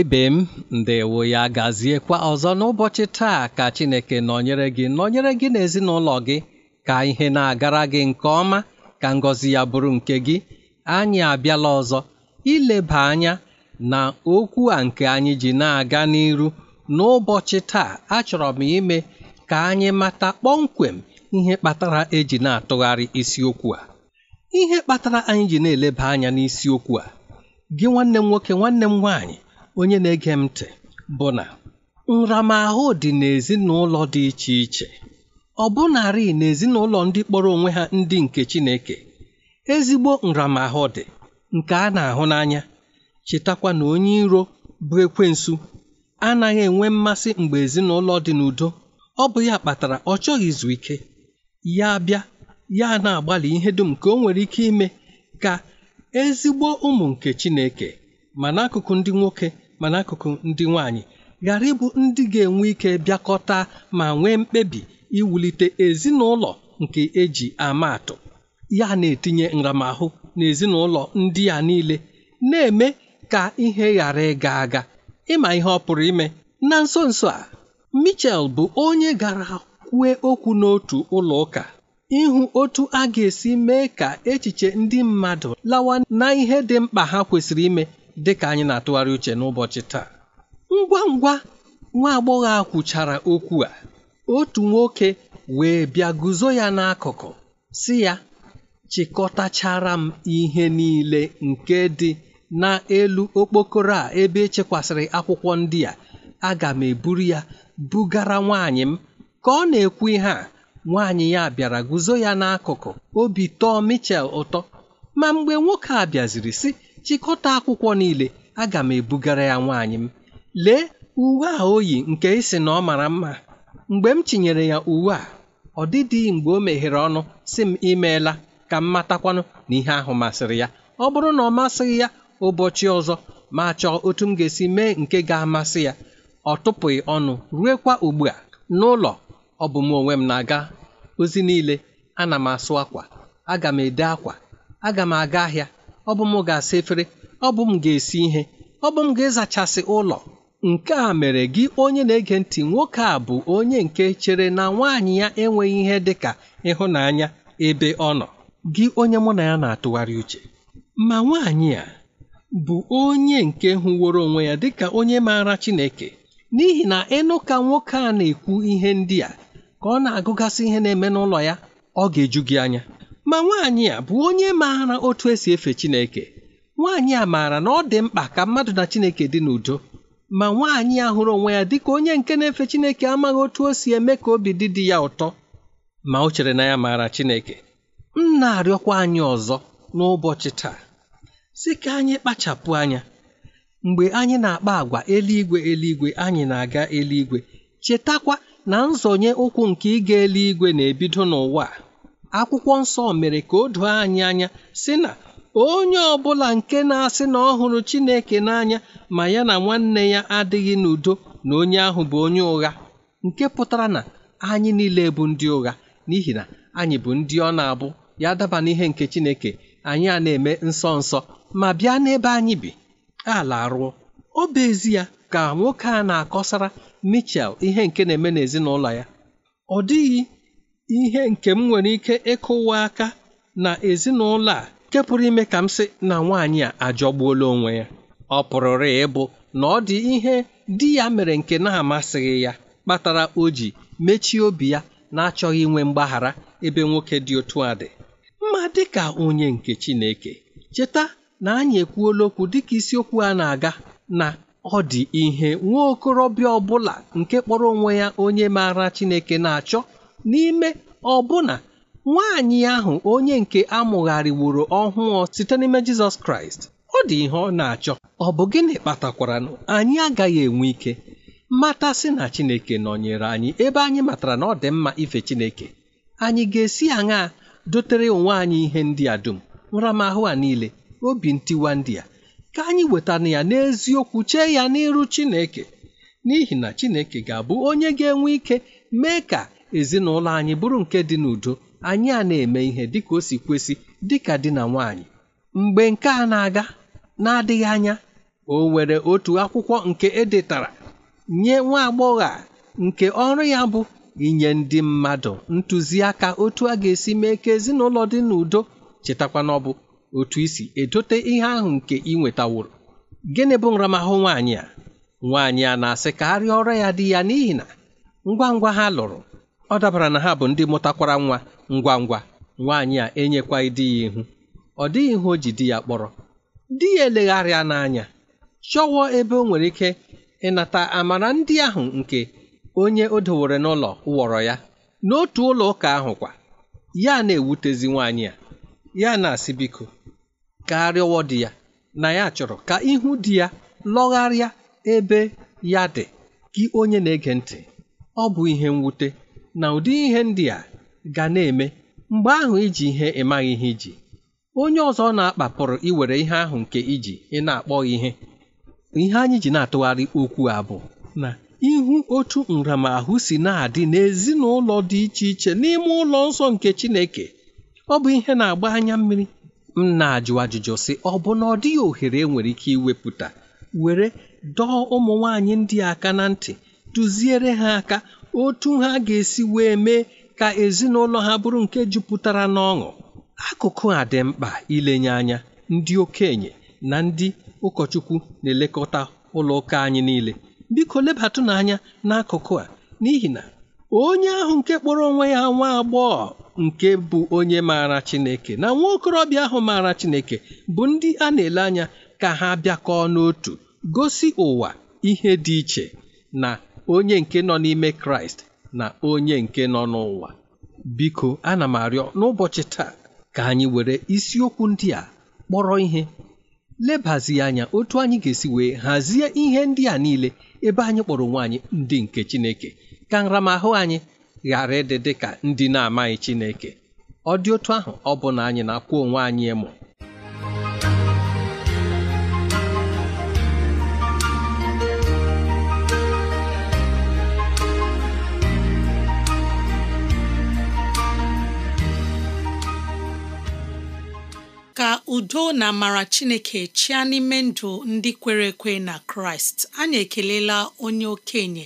ebe ibe m ndewo ya gaziekwa ọzọ n'ụbọchị taa ka chineke nọnyere gị nọnyere gị n'ezinụlọ gị ka ihe na-agara gị nke ọma ka ngọzi ya bụrụ nke gị anyị abịala ọzọ ileba anya na okwu a nke anyị ji na-aga n'iru n'ụbọchị taa achọrọ m ime ka anyị mata kpọmkwem ihe kpatara eji na-atụgharị isiokwu a ihe kpatara anyị ji na-eleba anya n'isiokwu a gị nwanne m nwoke nwanne m nwaanyị onye na-ege m ntị bụ na nramahụ dị n'ezinụlọ dị iche iche ọ bụnarị n'ezinụlọ ndị kpọrọ onwe ha ndị nke Chineke ezigbo nramahụ dị nke a na-ahụ n'anya chetakwa na onye iro bụ ekwensu anaghị enwe mmasị mgbe ezinụlọ dị n'udo ọ bụ ya kpatara ọ chọghị izu ike ya bịa ya na-agbalị ihe dum ka o nwere ike ime ka ezigbo ụmụ nke Chineke ma n'akụkụ ndị nwoke ma n'akụkụ ndị nwanyị. ghara ịbụ ndị ga-enwe ike bịakọta ma nwee mkpebi iwulite ezinụlọ nke eji ama atụ ya na-etinye nramahụ n'ezinụlọ ndị a niile na-eme ka ihe ghara ịga aga ịma ihe ọ pụrụ ime na nso nso a Michel bụ onye gara kwue okwu n'otu ụlọ ụka ịhụ otu a ga-esi mee ka echiche ndị mmadụ lawa na ihe dị mkpa ha kwesịrị ime Dịka anyị na-atụgharị uche n'ụbọchị taa ngwa ngwa nwa agbọghọ a kwuchara okwu a otu nwoke wee bịa guzo ya n'akụkụ si ya chịkọtachara m ihe niile nke dị n'elu okpokoro a ebe echekwasịrị akwụkwọ ndị a aga m eburu ya bugara nwaanyị m ka ọ na-ekwu ihe a nwaanyị ya bịara guzo ya n'akụkụ obi tọọ Michel ụtọ ma mgbe nwoke a bịaziri si. chịkọta akwụkwọ niile aga m ebugara ya nwaanyị m lee uwe a o yi nke ịsị na ọ mara mma mgbe m tinyere ya uwe a ọ dịdịghị mgbe o meghere ọnụ si m imeela ka m matakwanụ na ihe ahụ masịrị ya ọ bụrụ na ọ masịghị ya ụbọchị ọzọ ma chọọ otu m ga-esi mee nke ga-amasị ya ọ tụpụghị ọnụ ruekwa ugbu a n'ụlọ ọ bụ m onwe m na-aga ozi niile ana m asụ akwa aga m ede akwa aga m aga ahịa ọ bụ m ga-asa efere ọ bụ m ga-esi ihe ọ bụ m ga-ezachasị ụlọ nke a mere gị onye na-ege ntị nwoke a bụ onye nke chere na nwaanyị ya enweghị ihe dị ka ịhụnanya ebe ọ nọ gị onye mụ na ya na-atụgharị uche ma nwaanyị a bụ onye nke hụworo onwe ya dịka onye maara Chineke n'ihi na ịnụ ka nwoke a na-ekwu ihe ndị a ka ọ na-agụgasị ihe na-eme n'ụlọ ya ọ ga-eju gị anya ma nwaanyị a bụ onye maara otu esi efe Chineke nwaanyị a maara na ọ dị mkpa ka mmadụ na Chineke dị n'udo ma nwaanyị a hụrụ onwe ya dịka onye nke na-efe Chineke amaghị otu o si eme ka obi dị dị ya ụtọ ma o chere na ya maara Chineke m na-arịọkwa anyị ọzọ n'ụbọchị taa Si ka anyị kpachapụ anya mgbe anyị na-akpa agwa eluigwe eluigwe anyị na-aga eluigwe chetakwa na nzọnye ụkwụ nke ịga eluigwe na-ebido n'ụwa a akwụkwọ nsọ mere ka o doo anyị anya sị na onye ọbụla nke na-asị na ọ hụrụ Chineke n'anya ma ya na nwanne ya adịghị n'udo na onye ahụ bụ onye ụgha nke pụtara na anyị niile bụ ndị ụgha n'ihi na anyị bụ ndị ọ na-abụ ya daba n'ihe nke Chineke anyị a na-eme nsọ nsọ ma bịa n'ebe anyị bi ala arụọ ọ bụ ezi ya ka nwoke a na-akọsara Michel ihe nke na-eme n'ezinụlọ ya ọ dịghị ihe nke m nwere ike ịkụwa aka na ezinụlọ a nke pụrụ ime ka m sị na nwaanyị a ajọgbuola onwe ya ọ pụrụrụ ịbụ na ọ dị ihe di ya mere nke na-amasịghị ya kpatara o ji mechie obi ya na-achọghị inwe mgbaghara ebe nwoke dị otu a dị mma dịka onye nke Chineke cheta na anyị ekwuola okwu dịka isiokwu a na-aga na ọ dị ihe nwa okorobịa ọbụla nke kpọrọ onwe ya onye maara Chineke na-achọ n'ime ọbụna nwaanyị ahụ onye nke amụgharịworo ọhụụ site n'ime Jizọs Kraịst ọ dị ihe ọ na-achọ ọ bụ gịnị kpatakwara na anyị agaghị enwe ike matasị na Chineke nọnyere anyị ebe anyị matara na ọ dị mma ife Chineke anyị ga-esi aṅaa dotere onwe anyị ihe ndị a dum nramahụ a niile obi ntiwa ndị a ka anyị wetara ya n'eziokwu chee ya n'iru Chineke n'ihi na Chineke ga-abụ onye ga-enwe ike mee ka ezinụlọ anyị bụrụ nke dị n'udo anyị a na-eme ihe dịka o si kwesị dịka di na nwanyị mgbe nke a na-aga na-adịghị anya o nwere otu akwụkwọ nke edetara nye nwa agbọghọ a nke ọrụ ya bụ inye ndị mmadụ ntụziaka otu a ga-esi mee ka ezinụlọ dị n'udo chetakwa na ọ bụ otu isi edote ihe ahụ nke ị nwetaworo gịnị bụ nramahụ nwaanyị a nwaanyị a na-asị ka ọrụ ya dị ya n'ihi na ngwa ngwa ha lụrụ ọ dabara na ha bụ ndị mụtakwara nwa ngwa ngwa nwaanyị a enyekwa di ya ihu ọ dịghị ihe o ji di ya kpọrọ di ya elegharịa n'anya chọwọ ebe o nwere ike ịnata amara ndị ahụ nke onye o dowere n'ụlọ wọrọ ya n'otu ụlọ ụka ahụ kwa ya na-ewutezi nwaanyị a ya na-asị biko ka arịọwọ di ya na ya chọrọ ka ihu di ya lọgharịa ebe ya dị gị onye na-ege ntị ọ bụ ihe mwute na ụdị ihe ndị a ga na-eme mgbe ahụ iji ihe ịmaghị ihe iji onye ọzọ na akpapụrụ iwere ihe ahụ nke iji ị na ihe ihe anyị ji na-atụgharị okwu a bụ na ihu otu nramahụ si na-adị n'ezinụlọ dị iche iche n'ime ụlọ nsọ nke Chineke ọ bụ ihe na-agba anya mmiri m na-ajụ ajụjụ sị ọ bụ na ọ dịghị ohere enwere ike iwepụta were dọọ ụmụ nwaanyị ndị aka na ntị duziere ha aka otu ha ga-esi wee mee ka ezinụlọ ha bụrụ nke jupụtara n'ọṅụ akụkụ a dị mkpa ilenye anya ndị okenye na ndị ụkọchukwu na-elekọta ụlọ ụka anyị niile biko lebatụ n'anya n'akụkụ a n'ihi na onye ahụ nke kpọrọ onwe ya nwa agbọghọ nke bụ onye maara Chineke na nwa okorobịa ahụ maara Chineke bụ ndị a na-ele anya ka ha bịakọọ n'otu gosi ụwa ihe dị iche na onye nke nọ n'ime kraịst na onye nke nọ n'ụwa biko ana m arịọ n'ụbọchị taa ka anyị were isiokwu ndị a kpọrọ ihe lebazi anya otu anyị ga-esi wee hazie ihe ndị a niile ebe anyị kpọrọ onwe anyị ndị nke chineke ka nramahụ anyị ghara ịdị dị ka ndị na-amaghị chineke ọ dị otu ahụ ọ bụ na anyị na-akwụ onwe anyị ịmụ ka udo na amara chineke chịa n'ime ndụ ndị kwere ekwe na kraịst anyị ekelela onye okenye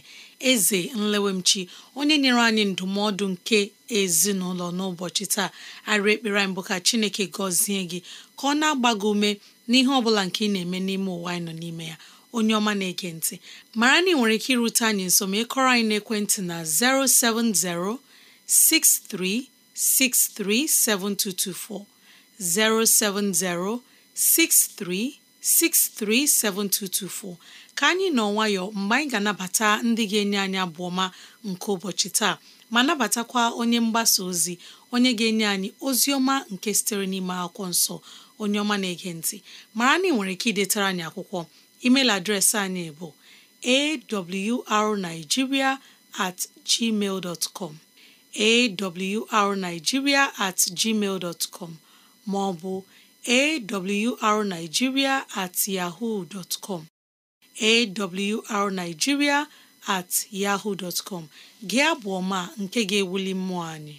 eze nlewemchi onye nyere anyị ndụmọdụ nke ezinụlọ n'ụbọchị taa arị ekpere mbụ ka chineke gọzie gị ka ọ na-agba gị ume n'ihe ọ bụla nke ị na-eme n'ime ụwa anyị nọ n'ime ya onye ọma na-ege ntị mara na ị nwere ike irute anyị nso ma ịkọrọ anyị n'ekwentị na 070 6363 7224 07063637224 ka anyị nọ nwayọ mgbe anyị ga-anabata ndị ga-enye anyị abụ ọma nke ụbọchị taa ma nabatakwa onye mgbasa ozi onye ga-enye anyị ozi ọma nke sitere n'ime akwụkwọ nsọ onye ọma na-ege ntị mara na ị nwere ike idetara anyị akwụkwọ email adreesị anyị bụ awrnigeria at gmail com awrnigeria at gmail com ma ọ bụ awrnigeria at yahoo dot com awrnigeria at yahoo dot gị abụ ọma nke ga-ewuli mmụọ anyị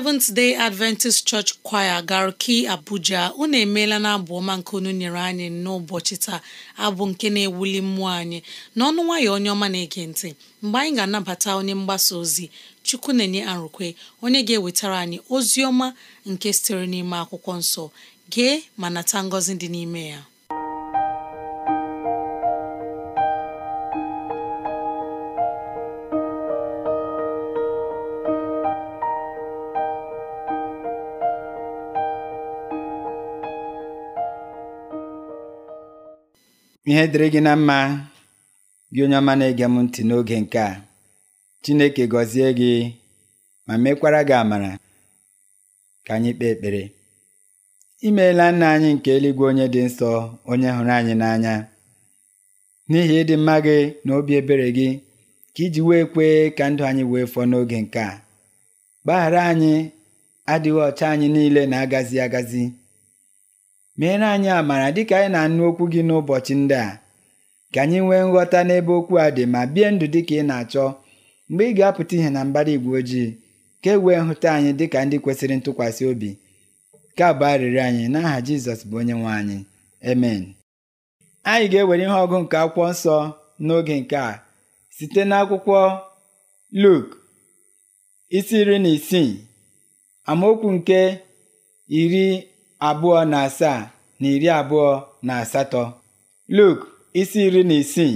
Seventh Day Adventist Church Choir Garki Abuja unu emeela na abụ ọma nke unu nyere anyị n'ụbọchị taa abụ nke na-ewuli mmụọ anyị n'ọnụ nwayọ onye ọma na-ege ntị mgbe anyị ga-anabata onye mgbasa ozi Chukwu na-enye arụkwe onye ga-ewetara anyị ozi ọma nke sitere n'ime akwụkwọ nsọ gee ma nata ngọzi dị n'ime ya ihe dịrị gị na mma gị onye ọma na-ege m ntị n'oge nke a Chineke gọzie gị ma mekwara gị amara ka anyị kpee ekpere imeela nna anyị nke eluigwe onye dị nsọ onye hụrụ anyị n'anya n'ihi ịdị mma gị na obi ebere gị ka iji wee kwee ka ndụ anyị wee fọọ n'oge nke a gbaghara anyị adịghị ọcha anyị niile na-agazi agazi meere anyị amara dịka anyị na-anụ okwu gị n'ụbọchị ndị a ka anyị nwee nghọta n'ebe okwu a dị ma bie ndụ dịka ị na-achọ mgbe ị ga-apụta ihe na mbara igwe ojii ka e wee nhụta anyị dịka ndị kwesịrị ntụkwasị obi ka bụ arịrịọ anyị n'aha Jizọs bụ onye nwe anyị emen anyị ga-ewere ihe ọgụ nke akwụkwọ nsọ n'oge nke a site n'akwụkwọ Luk isi iri na isii amaokwu nke iri abụọ na asaa na iri abụọ na asatọ Luk isi iri na isii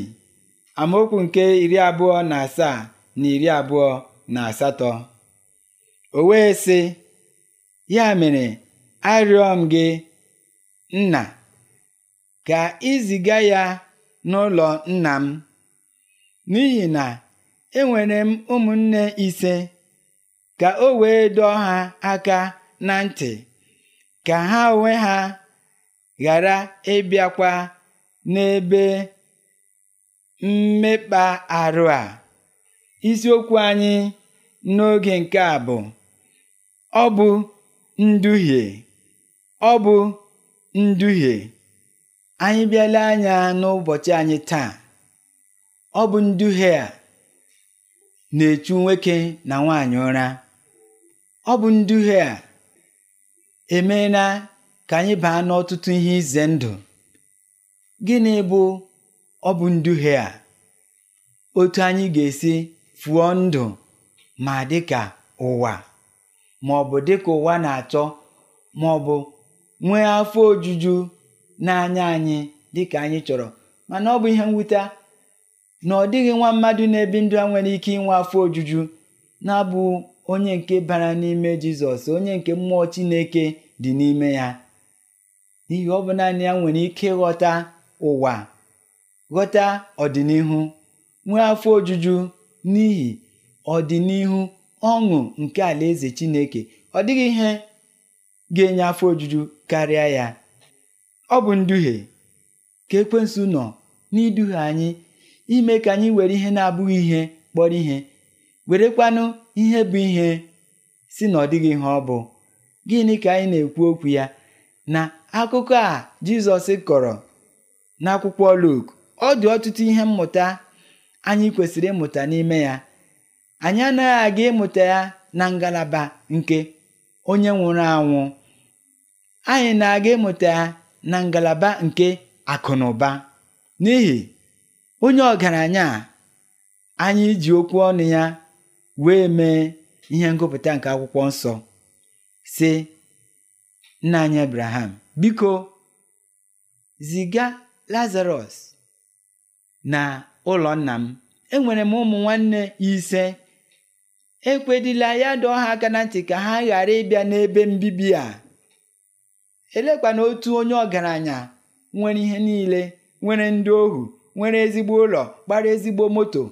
amaokwu nke iri abụọ na asaa na iri abụọ na asatọ o wee sị ya mere arịọ m gị nna ka iziga ya n'ụlọ nna m n'ihi na enwere m ụmụnne ise ka o wee dọọ ha aka na ntị ka ha onwe ha ghara ịbịakwa n'ebe mmekpa arụ a isiokwu anyị n'oge nke a bụ ọ bụ nduhie ọ bụ nduhie anyị bịala anya n'ụbọchị anyị taa ọ bụ nduhie a na-echu nwoke na nwaanyị ụra ọ bụ nduhie a emeela ka anyị baa n'ọtụtụ ihe ize ndụ gịnị bụ ọ bụ nduhie a otu anyị ga-esi fụọ ndụ ma dịka ụwa ma ọ bụ dịka ụwa na-achọ ma ọ bụ nwee afọ ojuju na-anya anyị dịka anyị chọrọ mana ọ bụ ihe mwute na ọ dịghị nwa mmadụ na-ebi ndụ a nwere ike inwe afọ ojuju na-abụ onye nke bara n'ime jizọs onye nke mmụọ chineke dị n'ime ya n'ihi ọ bụ naanị ya nwere ike ghọta ụwa ghọta ọdịnihu nwee afọ ojuju n'ihi ọdịnihu ọṅụ nke alaeze chineke ọ dịghị ihe ga-enye afọ ojuju karịa ya ọ bụ nduhie ka ekwensu nọ n'iduhie anyị ime ka anyị were ihe na-abụghị ihe kpọrọ ihe werekwanụ ihe bụ ihe si na ọ dịghị ihe ọ bụ gịnị ka anyị na-ekwu okwu ya na akụkọ a Jizọs kọrọ n'akwụkwọ Luk ọ dị ọtụtụ ihe mmụta anyị kwesịrị ịmụta n'ime ya anyị anaghị aga ịmụta ya na ngalaba nke onye nwụrụ anwụ anyị na-aga ịmụta ya na ngalaba nke akụ na ụba n'ihi onye ọgaranya anyị ji okwu ọnụ ya wee mee ihe ngụpụta nke akwụkwọ nsọ si nna anyị abraham biko ziga lazarus na ụlọ nna m enwere m ụmụ nwanne ise ekwedila ya dọọ ha aka na ntị ka ha ghara ịbịa n'ebe mbibi a elekwana otu onye ọgaranya nwere ihe niile nwere ndị ohu nwere ezigbo ụlọ gbara ezigbo moto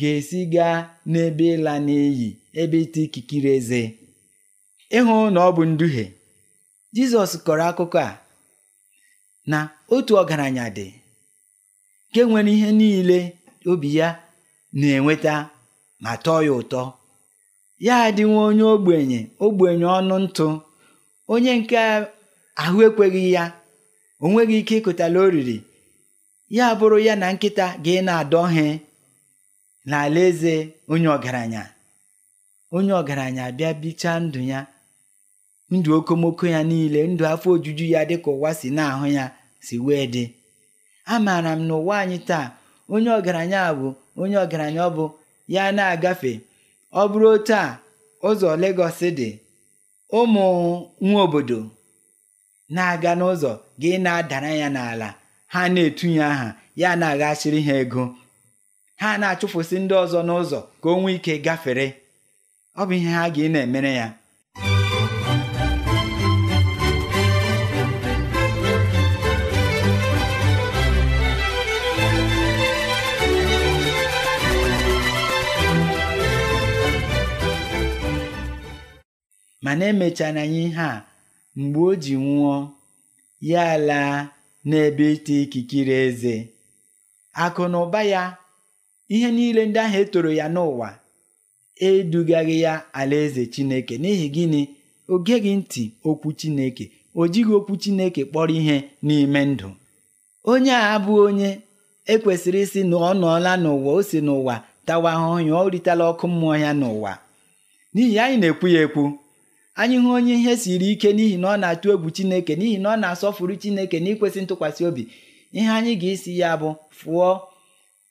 ga-esi gaa n'ebe ịla n'iyi ebe ịta ikikere eze ịhụ na ọ bụ nduhie Jizọs kọrọ akụkọ a na otu ọgaranya dị nke nwere ihe niile obi ya na-enweta ma tọọ ya ụtọ ya nwa onye ogbenye ogbenye ọnụ ntụ onye nke ahụ ekweghị ya o nweghị ike ịkụtala oriri ya bụrụ ya na nkịta ga na-adọ he eze onye ọgaranya onye ọgaranya bịa bichaa ndụ ya ndụ okomoko ya niile ndụ afọ ojuju ya dịka ụwa si na-ahụ ya si wee dị amaara m na ụwa anyị taa onye ọgaranya bụ onye ọgaranya ọ bụ ya na-agafe ọ bụrụ otu ụzọ Lagos dị ụmụ nwa obodo na-aga n'ụzọ gị na-adara ya n'ala ha na-etunye aha ya na-aghachiri ha ego ha na-achụfụsị ndị ọzọ n'ụzọ ka o nwee ike gafere ọ bụ ihe ha ga na-emere ya mana emechara anyị ihe a mgbe o ji nwụọ ya laa n'ebe ite ikikere eze akụ na ụba ya ihe niile ndị ahụ etoro ya n'ụwa edugaghị ya alaeze Chineke n'ihi gịnị o geghị ntị okwu Chineke o jighị okwu Chineke kpọrọ ihe n'ime ndụ onye a abụghị onye ekwesịrị ịsị na ọ nọọla n'ụwa o si n'ụwa tawa ahụhụ ya o ọkụ mmụọ ya n'ụwa n'ihi anyị na-ekwu ya ekwu anyị hụ onye ihe siri ike n'ihi na ọ na-atụ egwu Chineke n'ihi na ọ na-asọfuru Chineke n'ikwesị ntụkwasị obi ihe anyị ga-esi ya bụ fụọ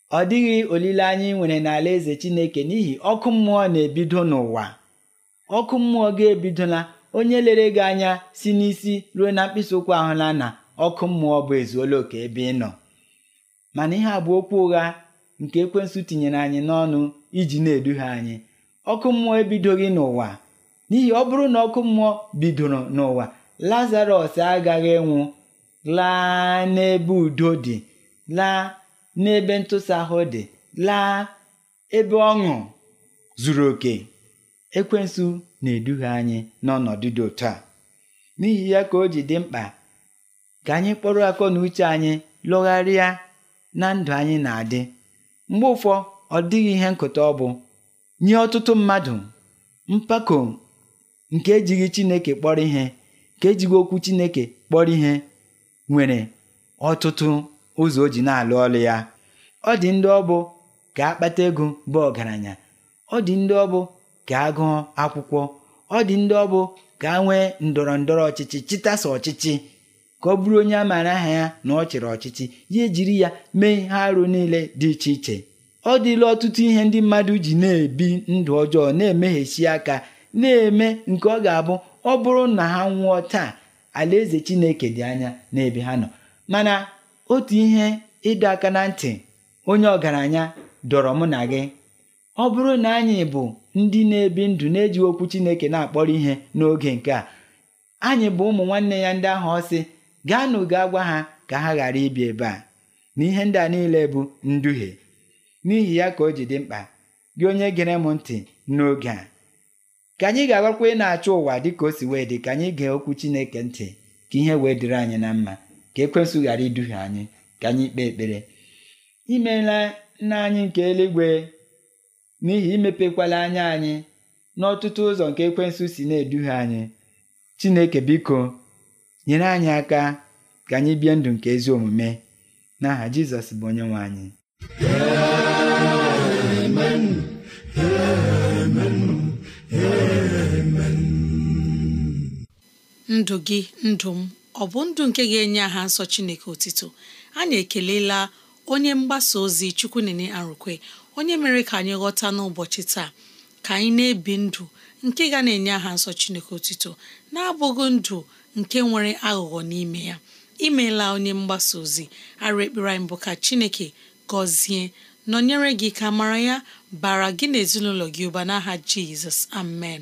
ọ dịghị olileanya ị nwere n'ala eze Chineke n'ihi ọkụ mmụọ na-ebido n'ụwa ọkụ mmụọ ga-ebidola onye lere gị anya si n'isi ruo na mkpịsị ụkwụ ahụla na ọkụ mmụọ bụ ezuola oke ebe ị nọ mana ihe a bụ okwu ụgha nke ekwensụ tinyere anyị n'ọnụ iji na-eduhie anyị ọkụ mmụọ ebidoghị n'ụwa n'ihi ọ bụrụ na ọkụ mmụọ bidoro n'ụwa lazarọs agaghị nwụ laa n'ebe udo dị laa n'ebe ntụsị ahụ dị laa ebe ọṅụ zuru oke ekwensu na-eduhie anyị n'ọnọdụ dị otu a n'ihi ya ka o ji dị mkpa ka anyị kpọrọ akọ na uche anyị lụgharịa na ndụ anyị na-adị mgbe ụfọ ọ dịghị ihe nkụta ọ bụ nye ọtụtụ mmadụ mpako nke ejighị Chineke kpọrọ ihe ka ejighị okwu Chineke kpọrọ ihe nwere ọtụtụ ụzọ o ji na-alụ ọlụ ya ọ dị ndị ọbụ gaa akpata ego bụ ọgaranya ọ dị ndị ọbụ ga-agụọ akwụkwọ ọ dị ndị ọbụ gaa nwee ndọrọ ndọrọ ọchịchị chịtasa ọchịchị ka ọ bụrụ onye a maara aha ya na ọ chịrị ọchịchị ya ejiri ya mee ihe arụ niile dị iche iche ọ dịla ọtụtụ ihe ndị mmadụ ji na-ebi ndụ ọjọọ na-emeghesi aka na-eme nke ọ ga-abụ ọ bụrụ na ha nwụọ taa alaeze Chineke dị anya n'ebe ha nọ mana otu ihe ịdọ aka na ntị onye ọgaranya dọrọ mụ na gị ọ bụrụ na anyị bụ ndị na-ebi ndụ na-eji okwu Chineke na-akpọrọ ihe n'oge nke a anyị bụ ụmụ nwanne ya ndị ahụ ọsị gaanụ gaa gwa ha ka ha ghara ibi ebe a na ihe ndị a niile bụ nduhie n'ihi ya ka o ji dị mkpa gị onye gere m ntị n'oge a ka anyị ga-agakwa ị na-achọ ụwa dịka o si wee dị ka anyị gee okwu Chineke ntị ka ihe wee dịrị anyị na mma ka ekwensụ ghara iduhie anyị ka anyị kpee ekpere imeela nna anyị nke eluigwe n'ihi imepekwala anya anyị n'ọtụtụ ụzọ nke ekwensụ si na-eduhie anyị chineke biko nyere anyị aka ka anyị bie ndụ nke ezi omume n'aha jizọs bụ onye nwe anyị ndụ gị ndụ m ọ bụ ndụ nke ga-enye aha nsọ Chineke otito anyị ekelela onye mgbasa ozi Chukwunene Arụkwe onye mere ka anyị ghọta n'ụbọchị taa ka anyị na-ebi ndụ nke ga na-enye aha nsọ Chineke otito na-abụghị ndụ nke nwere aghụghọ n'ime ya imeela onye mgbasa ozi arụ ekpere anyị bụ ka Chineke gọzie nọnyere gị ka mara ya bara gị na ezinụlọ gị ụba n'aha Jizọs amen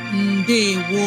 ndewo